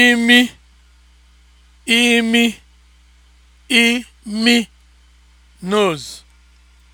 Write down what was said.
imi imi imi nose